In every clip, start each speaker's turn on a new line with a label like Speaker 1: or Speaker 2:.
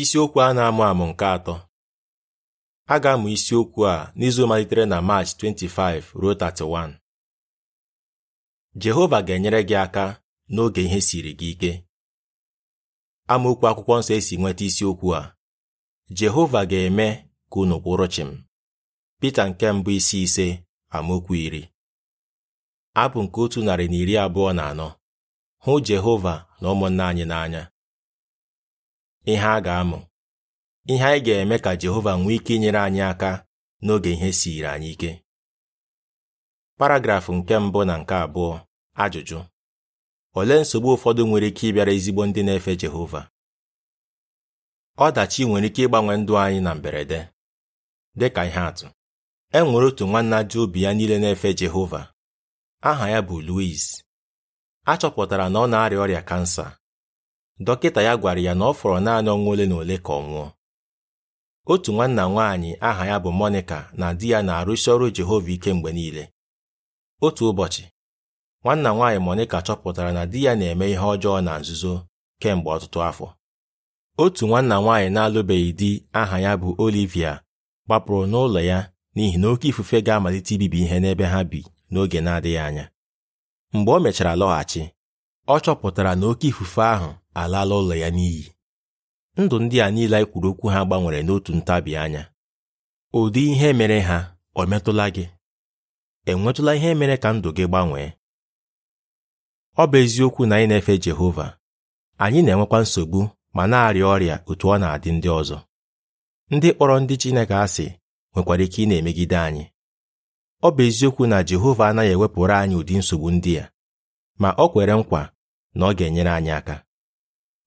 Speaker 1: isiokwu a na-amụ amụ nke atọ a ga-amụ isiokwu a n'izu malitere na Maachị 25 ruo 31 Jehova ga-enyere gị aka n'oge ihe siri gị ike amaokwu akwụkwọ nsọ esi nweta isiokwu a Jehova ga-eme ka unu kwụrụ chịm Pita nke mbụ isi ise amaokwu iri abụ nke otu narị na iri abụọ na anọ hụ Jehova na ụmụnna anyị n'anya ihe a ga-amụ ihe anyị ga-eme ka Jehova nwee ike inyere anyị aka n'oge ihe siri anyị ike paragrafụ nke mbụ na nke abụọ ajụjụ olee nsogbu ụfọdụ nwere ike ịbịara ezigbo ndị na-efe Jehova ọdachi nwere ike ịgbanwe ndụ anyị na mberede Dị ka ihe atụ e nwere otu nwanna ji obi ya niile na-efe Jehova aha ya bụ Louis a na ọ na-arịa ọrịa kansa dọkịta ya gwara ya na ọ fọrọ naanị ọnwa ole na ole ka ọ nwụọ otu nwanna nwaanyị aha ya bụ Monica na di ya na-arụsi ọrụ Jehova ike mgbe niile otu ụbọchị nwanna nwaanyị Monica chọpụtara na di ya na-eme ihe ọjọọ na nzuzo kemgbe ọtụtụ afọ otu nwanna nwaanyị na-alụbeghị di aha ya bụ Olivia gbapụrụ n'ụlọ ya n'ihi na oke ifufe ga-amalite ibibi ihe n'ebe ha bi n'oge na-adịghị anya mgbe o mechara lọghachi ọ chọpụtara na oke ifufe ahụ alaala ụlọ ya n'iyi ndụ ndị a niile anyị e kwuru okwu ha gbanwere n'otu ntabi anya ụdị ihe mere ha ọ metụla gị enwetụla ihe mere ka ndụ gị gbanwee ọ bụ eziokwu na anyị na-efe Jehova anyị na-enwekwa nsogbu ma na-arịa ọrịa otu ọ na-adị ndị ọzọ ndị kpọrọ ndị Chineke asị nwekwara ike ị na-emegide anyị ọ bụ eziokwu na Jehova anaghị ewepụrụ anyị ụdị nsogbu ndị a ma ọ kwere nkwa na ọ ga-enyere anyị aka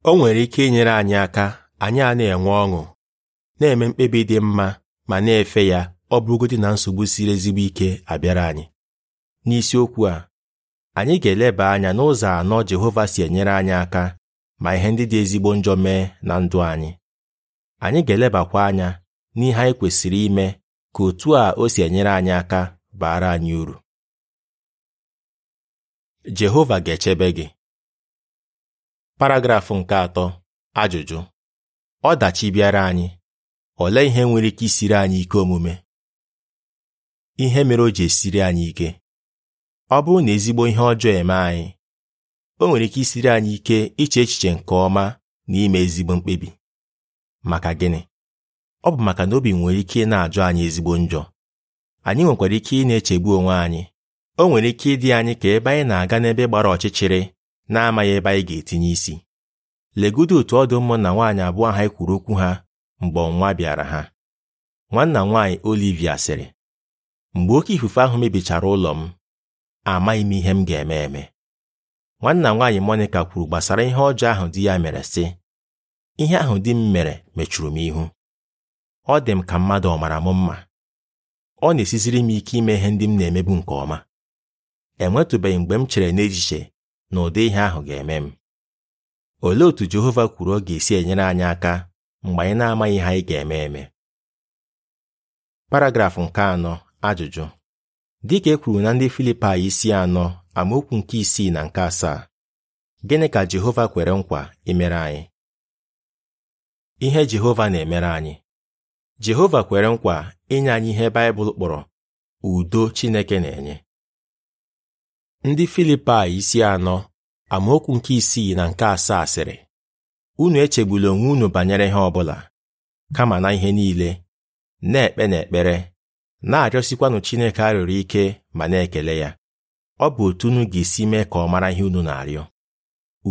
Speaker 1: o nwere ike inyere anyị aka anyị a na-enwe ọṅụ na-eme mkpebi dị mma ma na-efe ya ọ bụrụgodị na nsogbu siri ezigbo ike abịara anyị n'isiokwu a anyị ga-eleba anya n'ụzọ anọ Jehova si enyere anyị aka ma ihe ndị dị ezigbo njọ mee na ndụ anyị anyị ga-elebakwa anya n'ihe anyị kwesịrị ime ka otu a o si enyere anyị aka baara anyị uru Jehova ga-echebe gị paragrafụ nke atọ ajụjụ ọdachi bịara anyị olee ihe nwere ike isiri anyị ike omume ihe mere o ji esiri anyị ike ọ bụrụ na ezigbo ihe ọjọọ eme anyị o nwere ike isiri anyị ike iche echiche nke ọma na ime ezigbo mkpebi maka gịnị ọ bụ maka na obi nwere ike na-ajụ anyị ezigbo njọ anyị nwekwara ike ị na-echegbu onwe anyị o nwere ike ịdị anyị ka ebe anyị na-aga n'ebe gbara ọchịchịrị na-amaghị ebe anyị ga-etinye isi legodo otu ọdụ ụmụ na nwaanyị abụọ ha e kwuru okwu ha mgbe ọnwa bịara ha nwanna nwaanyị Olivia sịrị mgbe oke ifufe ahụ mebichara ụlọ m amaghị m ihe m ga-eme eme nwanna nwaanyị Monika kwuru gbasara ihe ọjọọ ahụ di ya mere sị ihe ahụ di m mere mechuru m ihu ọ dị m ka mmadụ ọ mara m mma ọ na-esiziri m ike ime ihe ndị m na-emebu nke ọma enwetụbeghị mgbe m chere n'ejiche na ụdị ihe ahụ ga-eme m olee otú Jehova kwuru ọ ga-esi enyere anyị aka mgbe anyị na-amaghị ihe anyị ga-eme eme paragrafụ nke anọ ajụjụ dịka e kwuru na ndị Filipaị isi anọ amaokwu nke isii na nke asaa gịnị ka Jehova kwere nkwa imere anyị ihe Jehova na-emere anyị Jehova kwere nkwa inye anyị ihe Baịbụl kpọrọ udo Chineke na-enye Ndị Filipai isi anọ amaokwu nke isii na nke asaa sịrị unu echegbula onwe unu banyere ihe ọbụla kama na ihe niile na-ekpe na ekpere, na-arịọsikwanụ Chineke arịọrọ ike ma na-ekele ya ọ bụ otu unu ga-esi mee ka ọ mara ihe unu na-arịọ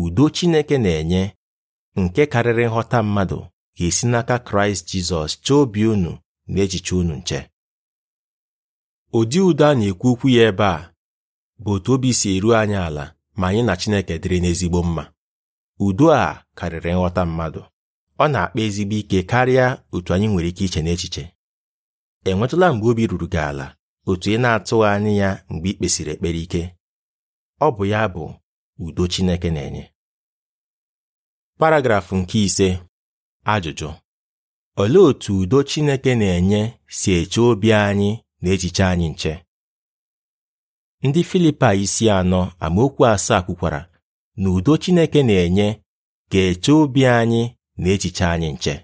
Speaker 1: udo Chineke na-enye nke karịrị nghọta mmadụ ga-esi n'aka Kraịst Jizọs chee obi unu na echiche unu nche ụdị udo a na-ekwu okwu ya ebe a bụ otu obi si eru anyị ala ma anyị na Chineke dịrị n'ezigbo mma udo a karịrị nghọta mmadụ ọ na-akpa ezigbo ike karịa otu anyị nwere ike iche n'echiche enwetụla mgbe obi ruru gị ala otu ị na-atụghị anyị ya mgbe ị kpesịrị ekpere ike ọ bụ ya bụ udo Chineke na-enye paragrafụ nke ise ajụjụ olee otú udo Chineke na-enye si eche obi anyị na echiche anyị nche ndị Filipa isi anọ amaokwu asaa kwukwara na udo Chineke na-enye ga-eche obi anyị na echiche anyị nche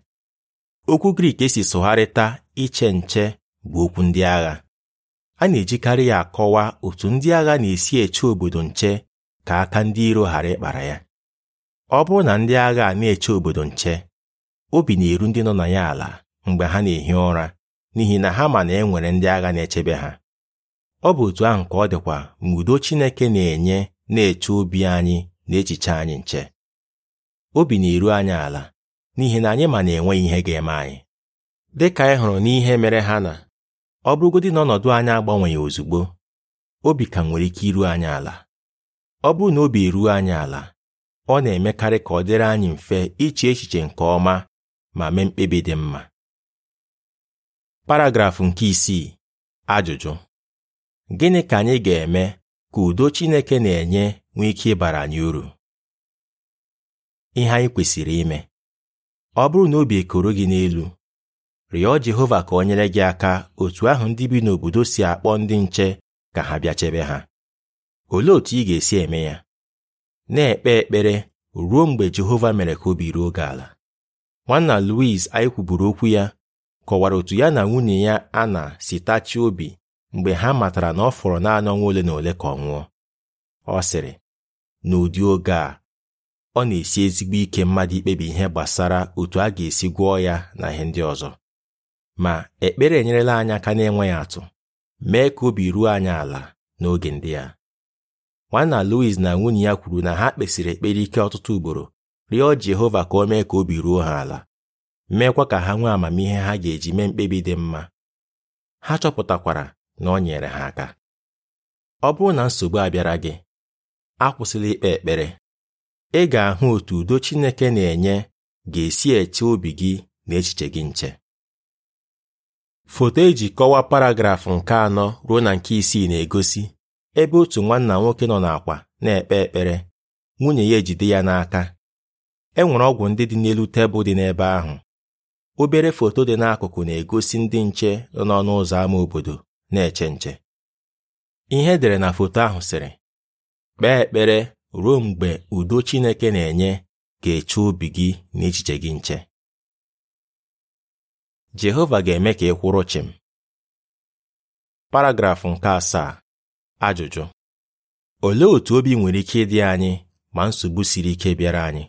Speaker 1: okwu Grik esi sụgharịta iche nche bụ okwu ndị agha a na-ejikarị ya akọwa otu ndị agha na-esi eche obodo nche ka aka ndị iro ghara ịkpara ya ọ bụrụ na ndị agha na-eche obodo nche obi na-eru ndị nọ na ya ala mgbe ha na-ehi ụra n'ihi na ha ma na e nwere ndị agha na-echebe ha ọ bụ otu ahụ ka ọ dịkwa mgbe udo Chineke na-enye na-eche obi anyị na echiche anyị nche obi na-eru anyị ala n'ihi na anyị ma na-enweghị ihe ga-eme anyị dị ka anyị hụrụ n'ihe mere ha na ọ bụrụgodị na ọnọdụ anyị agbanweghị ozugbo obi ka nwere ike iru anyị ala ọ bụrụ na obi eruo anyị ala ọ na-emekarị ka ọ dịrị anyị mfe iche echiche nke ọma ma mee mkpebi dị mma paragrafụ nke isii ajụjụ gịnị ka anyị ga-eme ka udo Chineke na-enye nwee ike ịbara anyị uru ihe anyị kwesịrị ime ọ bụrụ na obi ekoro gị n'elu rịọ Jehova ka o nyere gị aka otu ahụ ndị bi n'obodo si akpọ ndị nche ka ha bịa chebe ha olee otu ị ga-esi eme ya na-ekpe ekpere ruo mgbe Jehova mere ka obi ruo gị ala nwanna Louis anyị kwuburu okwu ya kọwara otu ya na nwunye ya a na sitachi obi mgbe ha matara na ọ fọrọ naanị ọnwa ole na ole ka ọ nwụọ ọ sịrị n'ụdị oge a ọ na-esi ezigbo ike mmadụ ikpebi ihe gbasara otu a ga-esi gwọọ ya na ihe ndị ọzọ ma ekpere enyerela anyị aka na-enweghị atụ mee ka obi ruo anyị ala n'oge ndị a nwanna Louis na nwunye ya kwuru na ha kpesịrị ekpere ike ọtụtụ ugboro rịọ Jehova ka o mee ka obi ruo ha ala meekwa ka ha nwee amamihe ha ga-eji mee mkpebi dị mma ha chọpụtakwara na ọ nyere ha aka ọ bụrụ na nsogbu abịara gị akwụsịla ikpe ekpere ị ga-ahụ otu udo Chineke na-enye ga-esi eche obi gị na echiche gị nche foto eji kọwaa paragrafụ nke anọ ruo na nke isii na-egosi ebe otu nwanna nwoke nọ n'akwa na-ekpe ekpere nwunye ya ejide ya n'aka e nwere ọgwụ ndị dị n'elu tebụl dị n'ebe ahụ obere foto dị n'akụkụ na-egosi ndị nche nọ n'ọnụ ụzọ ámá obodo na-eche ihe edere na foto ahụ sịrị kpee ekpere ruo mgbe udo Chineke na-enye ga-eche obi gị na echiche gị nche Jehova ga-eme ka ị kwụrụ chịm paragrafụ nke asaa ajụjụ olee otú obi nwere ike ịdị anyị ma nsogbu siri ike bịara anyị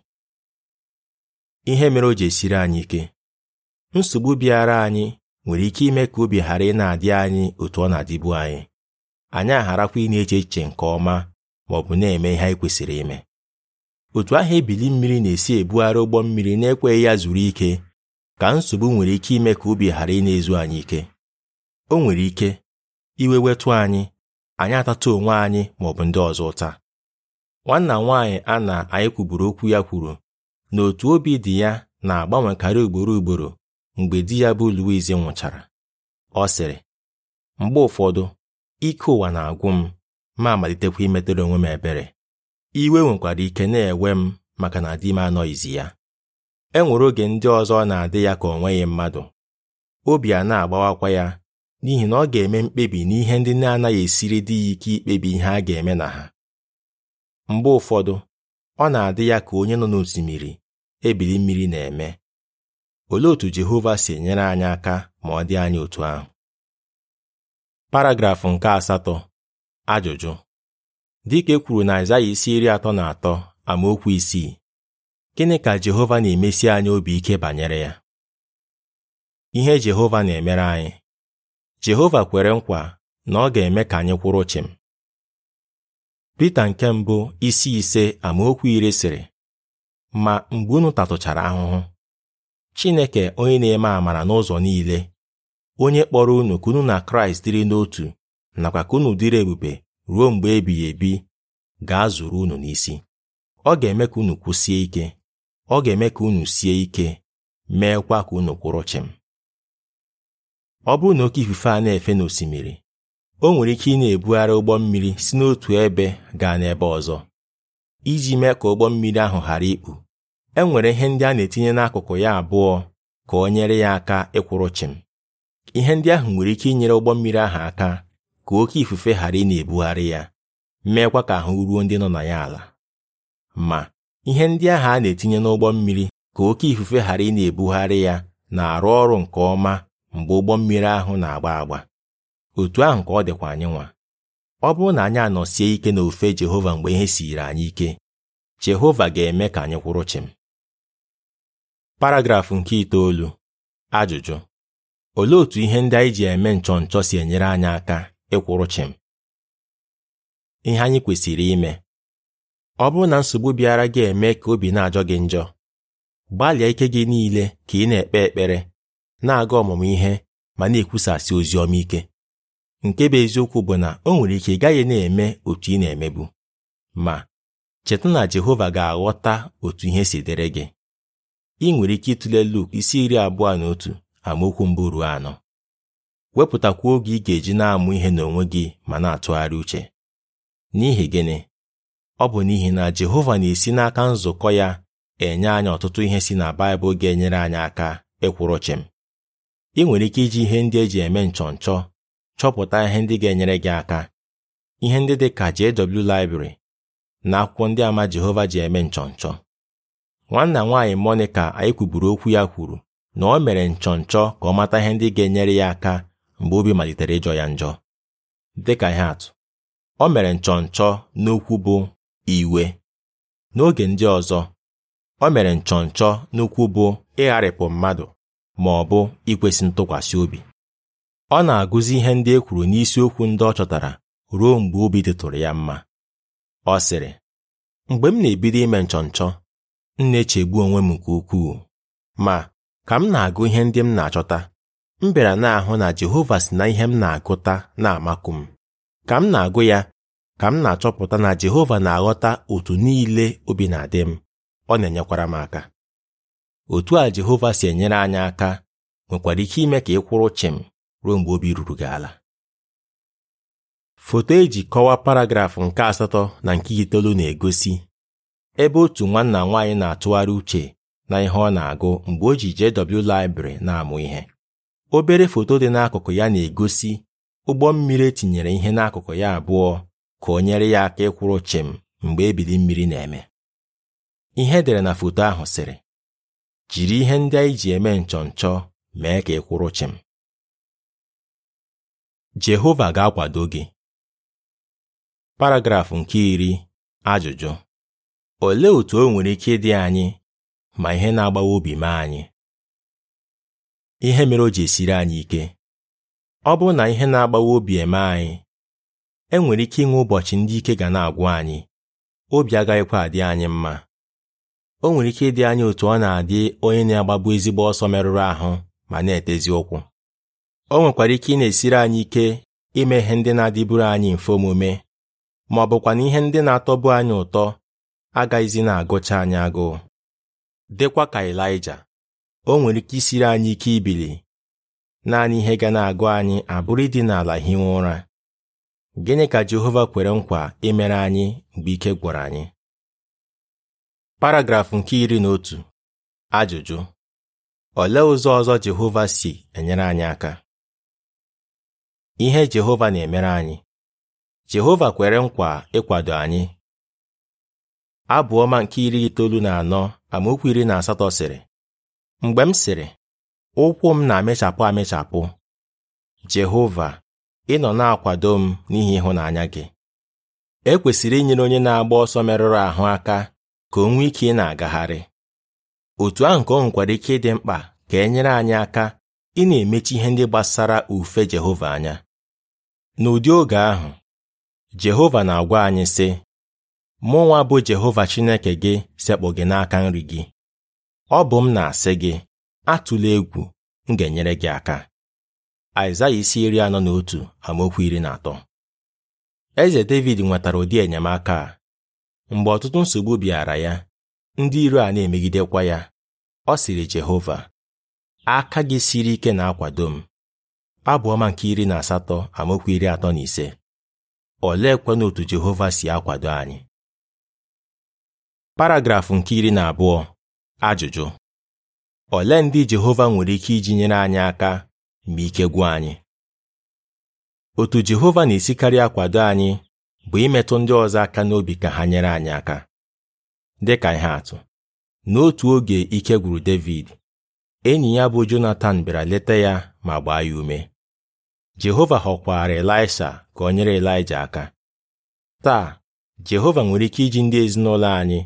Speaker 1: ihe mere o ji esiri anyị ike nsogbu bịara anyị nwere ike ime ka obi ghara ị na-adị anyị otu ọ na-adịbu anyị anyị agharakwa ịna na-eche echiche nke ọma ma ọ bụ na-eme ihe anyị kwesịrị ime otu ahụ ebili mmiri na-esi ebugharị ụgbọ mmiri na-ekweghị ya zuru ike ka nsogbu nwere ike ime ka obi ghara ị na-ezu anyị ike o nwere ike iwe wetụ anyị anyị atata onwe anyị ma ọ bụ ndị ọzọ ụta nwanna nwaanyị a na anyị kwuburu okwu ya kwuru na otu obi dị ya na-agbanwekarị ugboro ugboro mgbe di ya bụ Louise nwụchara ọ sịrị mgbe ụfọdụ ike ụwa na-agwụ m ma amalitekwa imetụrụ onwe m ebere iwe nwekwara ike na-ewe m maka na di m anọghịzi ya e nwere oge ndị ọzọ na-adị ya ka ọ mmadụ obi a na-agbawakwa ya n'ihi na ọ ga-eme mkpebi n'ihe ndị na-anaghị esiri di ya ike ikpebi ihe a ga-eme na ha mgbe ụfọdụ ọ na-adị ya ka onye nọ n'osimiri ebili mmiri na-eme olee otu Jehova si enyere anyị aka ma ọ dị anyị otu ahụ paragrafụ nke asatọ ajụjụ dịka e kwuru na Aịzaya isi iri atọ na atọ amaokwu isii gịnị ka Jehova na-emesi anyị obi ike banyere ya ihe Jehova na-emere anyị Jehova kwere nkwa na ọ ga-eme ka anyị kwụrụ chịm Pita nke mbụ isi ise amaokwu iri sịrị ma mgbe unu tatụchara ahụhụ Chineke onye na-eme amara n'ụzọ niile onye kpọrọ unu ka unu na Kraịst dịrị n'otu nakwa ka unu dịrị ebube ruo mgbe ebighị ebi gaa zuru unu n'isi ọ ga-eme ka unu kwụsie ike ọ ga-eme ka unu sie ike meekwa ka unu kwụrụ chim. ọ bụrụ na oke ifufe a na-efe n'osimiri o nwere ike ị na-ebugharị ụgbọ mmiri si n'otu ebe gaa n'ebe ọzọ iji mee ka ụgbọ mmiri ahụ ghara ikpu e nwere ihe ndị a na-etinye n'akụkụ ya abụọ ka o nyere ya aka ịkwụrụ chịm ihe ndị ahụ nwere ike inyere ụgbọ mmiri ahụ aka ka oke ifufe ghara ị na-ebugharị ya meekwa ka ahụ ruo ndị nọ na ya ala ma ihe ndị ahụ a na-etinye n'ụgbọ mmiri ka oke ifufe ghara ị na-ebugharị ya na-arụ ọrụ nke ọma mgbe ụgbọ mmiri ahụ na-agba agba otu ahụ ka ọ dịkwa anyị nwa ọ bụrụ na anyị anọsie ike n'ofe Jehova mgbe ihe siiri anyị ike Jehova ga-eme ka anyị kwụrụ chim paragrafụ nke itoolu ajụjụ olee otu ihe ndị anyị ji eme nchọ nchọ si enyere anyị aka ịkwụrụ chim? ihe anyị kwesịrị ime ọ bụrụ na nsogbu bịara gị eme ka obi na-ajọ gị njọ gbalịa ike gị niile ka ị na-ekpe ekpere na-aga ọmụmụ ihe ma na-ekwusasị ozi ọma ike nke bụ eziokwu bụ na o nwere ike ị gaghị na-eme otu ị na-emebu ma cheta na Jehova ga-aghọta otu ihe si dịrị gị ị nwere ike ịtụle Luk isi iri abụọ na otu amaokwu mbụ ruo anọ wepụtakwa oge ị ga-eji na-amụ ihe n'onwe gị ma na-atụgharị uche n'ihi gịnị ọ bụ n'ihi na Jehova na-esi n'aka nzukọ ya enye anyị ọtụtụ ihe si na Baịbụl ga-enyere anyị aka ịkwụrụ chịm ị nwere ike iji ihe ndị eji eme nchọnchọ chọpụta ihe ndị ga-enyere gị aka ihe ndị dị ka JW Library na akwụkwọ ndị ama Jehova ji eme nchọnchọ nwanna nwaanyị Monica anyị kwuburu okwu ya kwuru na o mere nchọnchọ ka ọ mata ihe ndị ga-enyere ya aka mgbe obi malitere ịjọ ya njọ dịka ihe atụ o mere nchọnchọ n'okwu bụ iwe n'oge ndị ọzọ o mere nchọnchọ n'okwu bụ ịgharịpụ mmadụ ma ọ bụ ikwesị ntụkwasị obi ọ na-agụzi ihe ndị e kwuru n'isiokwu ndị ọ chọtara ruo mgbe obi dịtụrụ ya mma ọ sịrị mgbe m na-ebido ime nchọnchọ m na-echegbu onwe m nke ukwuu ma ka m na-agụ ihe ndị m na-achọta m bịara na-ahụ na Jehova si na ihe m na-agụta na-amakụ m ka m na-agụ ya ka m na-achọpụta na Jehova na-aghọta otu niile obi na-adị m ọ na-enyekwara m aka otu a Jehova si enyere anyị aka nwekwara ike ime ka ị kwụrụ m ruo mgbe obi ruru gị ala foto eji kọwaa paragrafụ nke asatọ na nke itoolu na-egosi ebe otu nwanna nwaanyị na-atụgharị uche na ihe ọ na-agụ mgbe o ji JW Library na-amụ ihe obere foto dị n'akụkụ ya na-egosi ụgbọ mmiri etinyere ihe n'akụkụ ya abụọ ka o nyere ya aka ịkwụrụ chịm mgbe ebili mmiri na-eme ihe edere na foto ahụ sịrị jiri ihe ndị anyị ji eme nchọnchọ mee ka ị kwụrụ chịm Jehova ga-akwado gị paragrafụ nke iri ajụjụ olee otú o nwere ike dị anyị ma ihe na-agbawa obi mee anyị ihe mere o ji esiri anyị ike ọ bụrụ na ihe na-agbawa obi eme anyị e nwere ike inwe ụbọchị ndị ike ga na-agwụ anyị obi agaghịkwa adị anyị mma o nwere ike ịdị anyị otu ọ na-adị onye na-agbabu ezigbo ọsọ merụrụ ahụ ma na-etezi ụkwụ o nwekwara ike ị na-esiri anyị ike ime ihe ndị na-adịburu anyị mfe omume ma ọ bụkwa na ihe ndị na-atọbu anyị ụtọ agaghịzi na-agụcha anyị agụụ dịkwa ka elija o nwere ike isiri anyị ike ibili naanị ihe ga na-agụ anyị abụrụ ịdị n'ala hiwe ụra gịnị ka Jehova kwere nkwa imere anyị mgbe ike gwara anyị paragrafụ nke iri na otu ajụjụ olee ụzọ ọzọ Jehova si enyere anyị aka ihe Jehova na-emere anyị Jehova kwere nkwa ịkwado anyị abụọma nke iri itoolu na anọ amaokwu iri na asatọ sịrị mgbe m sịrị ụkwụ m na-amịchapụ amịchapụ Jehova ị nọ na-akwado m n'ihi ịhụnanya gị e kwesịrị inyere onye na-agba ọsọ merụrụ ahụ aka ka o nwee ike ị na-agagharị otu ahụ ka o nwekwara ike ịdị mkpa ka e nyere anyị aka ị na-emechi ihe ndị gbasara ufe Jehova anya n'ụdị oge ahụ Jehova na-agwa anyị sị mụnwa bụ Jehova Chineke gị sekpụ gị n'aka nri gị ọ bụ m na-asị gị atụla egwu m ga-enyere gị aka Aịzaya isi iri anọ na otu amaokwu iri na atọ Eze David nwetara ụdị enyemaka a mgbe ọtụtụ nsogbu bịara ya ndị iro a na-emegidekwa ya ọ sịrị Jehova aka gị siri ike na-akwado m abụọma nke iri na asatọ amaokwu iri atọ na ise oleekwanụ otu Jehova si akwado anyị paragrafụ nke iri na abụọ ajụjụ ole ndị Jehova nwere ike iji nyere anyị aka ma ike gwụ anyị otu Jehova na-esikarị akwado anyị bụ imetụ ndị ọzọ aka n'obi ka ha nyere anyị aka dịka ihe atụ n'otu oge ike gwuru David enyi ya bụ Jonatan bịara leta ya ma gbaa ya ume Jehova họkwara Elaịsha ka ọ nyere Elaịja aka taa Jehova nwere ike iji ndị ezinụlọ anyị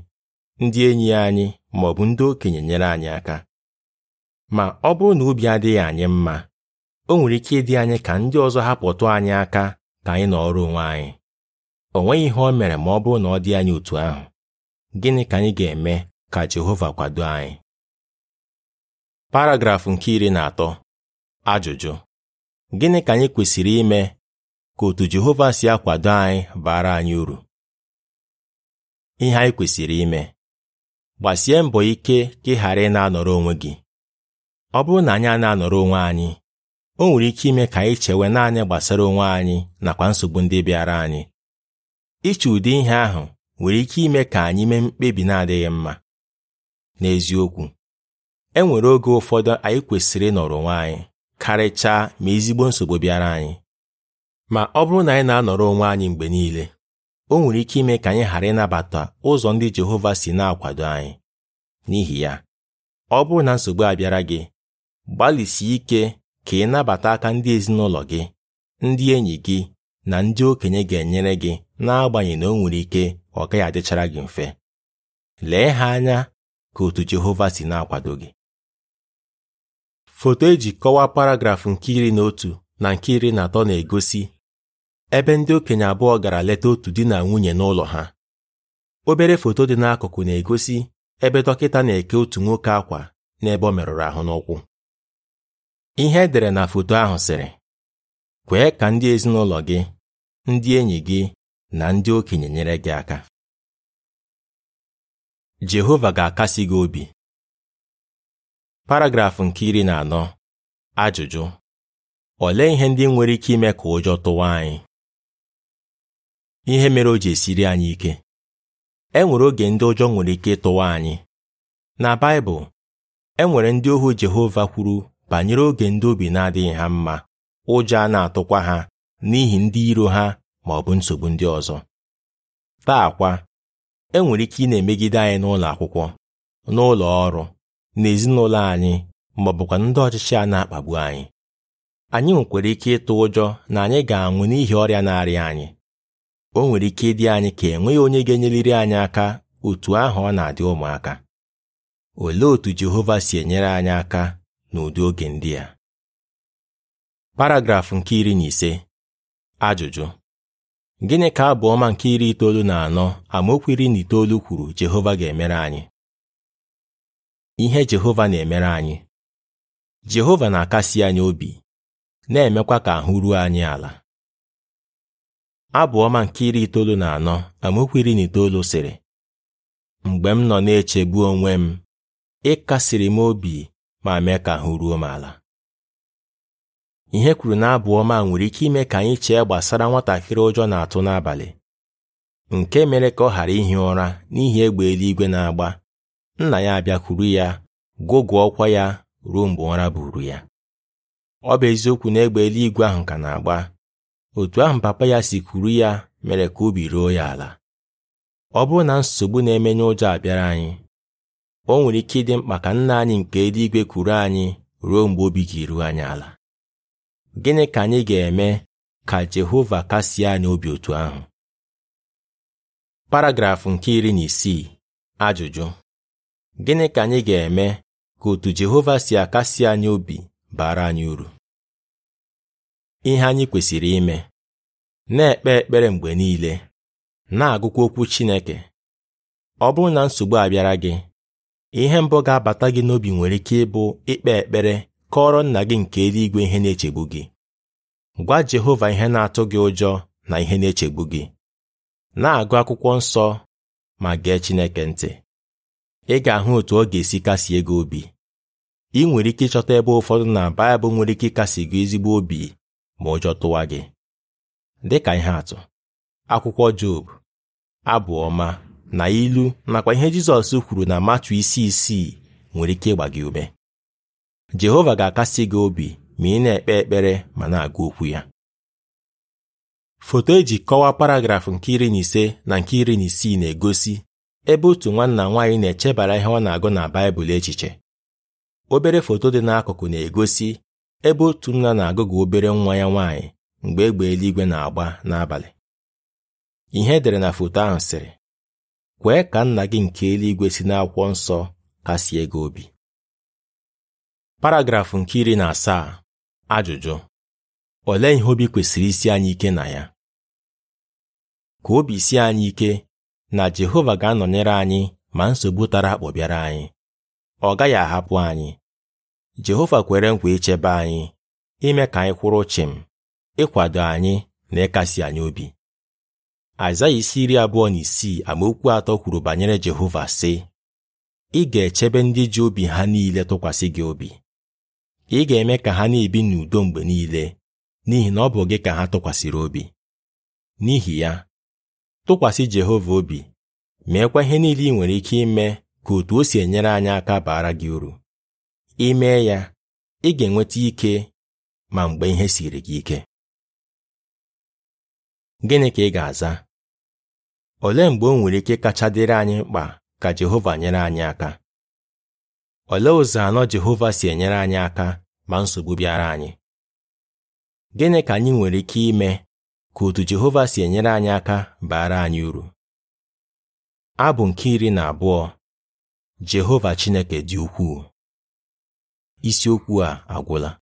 Speaker 1: ndị enyi anyị ma ọ bụ ndị okenye nyere anyị aka ma ọ bụrụ na obi adịghị anyị mma o nwere ike ịdị anyị ka ndị ọzọ hapụtụ anyị aka ka anyị nọọrọ onwe anyị o nweghị ihe o mere ma ọ bụrụ na ọ dị anyị otu ahụ gịnị ka anyị ga-eme ka Jehova kwado anyị paragrafụ nke iri na atọ ajụjụ gịnị ka anyị kwesịrị ime ka otu Jehova si akwado anyị bara anyị uru ihe anyị kwesịrị ime gbasie mbọ ike ka ị ghara ị na-anọrọ onwe gị ọ bụrụ na anyị a na-anọrọ onwe anyị o nwere ike ime ka anyị chewe naanị gbasara onwe anyị nakwa nsogbu ndị bịara anyị iche ụdị ihe ahụ nwere ike ime ka anyị mee mkpebi na-adịghị mma n'eziokwu e nwere oge ụfọdụ anyị kwesịrị ịnọrọ onwe anyị karịchaa ma ezigbo nsogbu bịara anyị ma ọ bụrụ na anyị na-anọrọ onwe anyị mgbe niile o nwere ike ime ka anyị ghara ịnabata ụzọ ndị Jehova si na-akwado anyị n'ihi ya ọ bụrụ na nsogbu a bịara gị gbalịsie ike ka ị nabata aka ndị ezinụlọ gị ndị enyi gị na ndị okenye ga-enyere gị n'agbanyeghị na o nwere ike ọ gaghị adịchara gị mfe lee ha anya ka otu Jehova si na-akwado gị foto eji kọwaa paragrafụ nke iri na otu na nke iri na atọ na-egosi ebe ndị okenye abụọ gara leta otu di na nwunye n'ụlọ ha obere foto dị n'akụkụ na-egosi ebe dọkịta na-eke otu nwoke akwa n'ebe ọ merụrụ ahụ n'ụkwụ ihe edere na foto ahụ sịrị kwee ka ndị ezinụlọ gị ndị enyi gị na ndị okenye nyere gị aka Jehova ga-akasi gị obi paragrafụ nke iri na anọ ajụjụ olee ihe ndị nwere ike ime ka ụjọ tụwa anyị ihe mere o ji esiri anyị ike e nwere oge ndị ụjọ nwere ike ịtụwa anyị na Baịbụl e nwere ndị ohu Jehova kwuru banyere oge ndị obi na-adịghị ha mma ụjọ a na-atụkwa ha n'ihi ndị iro ha ma ọ bụ nsogbu ndị ọzọ taa kwa e nwere ike ị na-emegide anyị n'ụlọ akwụkwọ n'ụlọ ọrụ n'ezinụlọ anyị ma ọ bụkwa ndị ọchịchị a na-akpagbu anyị anyị nwekwara ike ịtụ ụjọ na anyị ga-anwụ n'ihi ọrịa na-arịa anyị o nwere ike ịdị anyị ka enweghị onye ga-enyeliri anyị aka otu ahụ ọ na-adị ụmụaka olee otu Jehova si enyere anyị aka n'ụdị oge ndị a paragrafụ nke iri na ise ajụjụ gịnị ka abụ ọma nke iri itoolu na anọ amaokwu iri na itoolu kwuru Jehova ga-emere anyị ihe Jehova na-emere anyị Jehova na-akasi anyị obi na-emekwa ka ahụ ruo anyị ala abụọma nke iri itoolu na anọ amaokwu iri na itoolu sịrị mgbe m nọ na-echegbu onwe m ịkasiri m obi ma mee ka ahụ ruo m ala ihe kwuru na abụọma nwere ike ime ka anyị chee gbasara nwatakịrị ụjọ na-atụ n'abalị nke mere ka ọ ghara ihi ụra n'ihi egbe eluigwe na-agba nna ya abịakwuru ya gụgụ ọkwa ya ruo mgbe ụra buru ya ọ bụ eziokwu na egbe eluigwe ahụ ka na-agba otu ahụ papa ya si kwuru ya mere ka obi ruo ya ala ọ bụrụ na nsogbu na-emenye ụjọ abịara anyị o nwere ike ịdị mkpa ka nna anyị nke eluigwe kwuru anyị ruo mgbe obi ga-eru anyị ala gịnị ka anyị ga-eme ka Jehova kasie anyị obi otu ahụ paragrafụ nke iri na isii ajụjụ gịnị ka anyị ga-eme ka otu Jehova si akasi anyị obi bara anyị uru ihe anyị kwesịrị ime na-ekpe ekpere mgbe niile na-agụkwa okwu Chineke ọ bụrụ na nsogbu abịara gị ihe mbụ ga-abata gị n'obi nwere ike ịbụ ikpe ekpere kọọrọ nna gị nke eluigwe ihe na-echegbu gị gwa Jehova ihe na-atụ gị ụjọ na ihe na-echegbu gị na-agụ akwụkwọ nsọ ma gee Chineke ntị ị ga-ahụ otu ọ ga-esi kasie gị obi ị nwere ike ịchọta ebe ụfọdụ na Baịbụl nwere ike ịkasi gị ezigbo obi ma ụjọ tụwa gị "Dị ka ihe atụ akwụkwọ Job abụ ọma na ilu nakwa ihe Jizọs kwuru na matu isi isii nwere ike ịgba gị ume Jehova ga-akasi gị obi ma ị na-ekpe ekpere ma na-agụ okwu ya foto eji kọwaa paragrafụ nke iri na ise na nke iri na isii na-egosi ebe otu nwanna nwaanyị na-echebara ihe ọ na-agụ na Baịbụl echiche obere foto dị n'akụkụ na-egosi ebe otu nna na-agụgụ obere nwa ya nwanyị mgbe egbe eluigwe na-agba n'abalị ihe edere na foto ahụ sịrị kwee ka nna gị nke eluigwe si n'akwụkwọ nsọ kasie gị obi paragrafụ nke iri na asaa ajụjụ olee ihe obi kwesịrị isi anyị ike na ya ka obi si anyị ike na Jehova ga-anọnyere anyị ma nsogbu tara anyị ọ gaghị ahapụ anyị Jehova kwere nkwa ichebe anyị ime ka anyị kwụrụ chịm ịkwado anyị na ịkasi anyị obi Aịzaya isi iri abụọ na isii amaokwu atọ kwuru banyere Jehova sị ị ga-echebe ndị ji obi ha niile tụkwasị gị obi ị ga-eme ka ha na-ebi n'udo mgbe niile n'ihi na ọ bụ gị ka ha tụkwasịrị obi n'ihi ya tụkwasị Jehova obi meekwa ihe niile ị nwere ike ime ka otu o si enyere anyị aka baara gị uru mee ya ị ga-enweta ike ma mgbe ihe siri gị ike gịnị ka ị ga-aza olee mgbe o nwere ike kacha dịrị anyị mkpa ka Jehova nyere anyị aka olee ụzọ anọ Jehova si enyere anyị aka ma nsogbu bịara anyị gịnị ka anyị nwere ike ime ka otu Jehova si enyere anyị aka baara anyị uru abụ nke iri na abụọ Jehova Chineke dị ukwuu isiokwu a agwụla